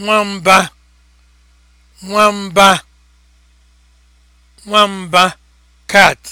nwamba nwamba nwamba cat